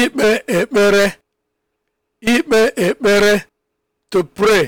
Ikpe ekpere, ikpe ekpere, to pray.